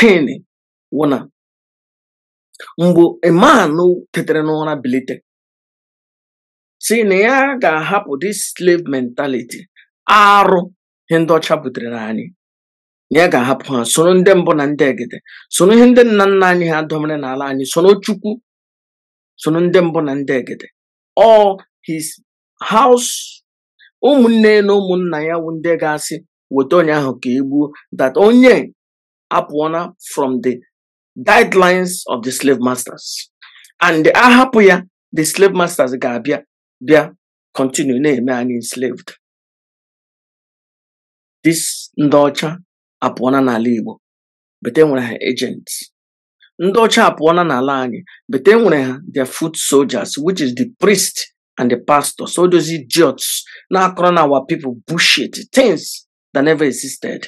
tin wụna mgbe iman tetere n'ụra bilite si na ya ga-ahapụ dis slave mentality arụ ihe ndị ọcha butere anyị na ya ga-ahapụ ha soro ndị mbụ na ndị egede soro ihe ndị nna nna anyị ha domere n'ala anyị soro chukwu soro ndị mbụ na ndị egede all his house ụmụnne na ụmụnna ya wụ ndị ga-asị weta onye ahụ ka e gbuo that onye up from the guidelines of the slave masters. And the Ahapuya, the slave masters ga-abịa bịa continue na-eme anyị enslaved. This ndị ọcha apụọna n'ala Igbo bete nwere ha agents. Ndị ọcha apụọna n'ala anyị bete nwere ha their foot soldiers which is the priest and the pastor. So those idiots now akoro our people bullshit things that never existed.